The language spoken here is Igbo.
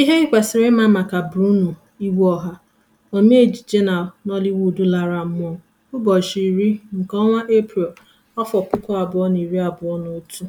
Ihe ị kwesịrị ịma maka Bruno iwu Iweọha, omee ejije na Nollywood lara mmụọ ụbọchị iri nke ọnwa april afọ puku abụọ na iri abụọ na otu.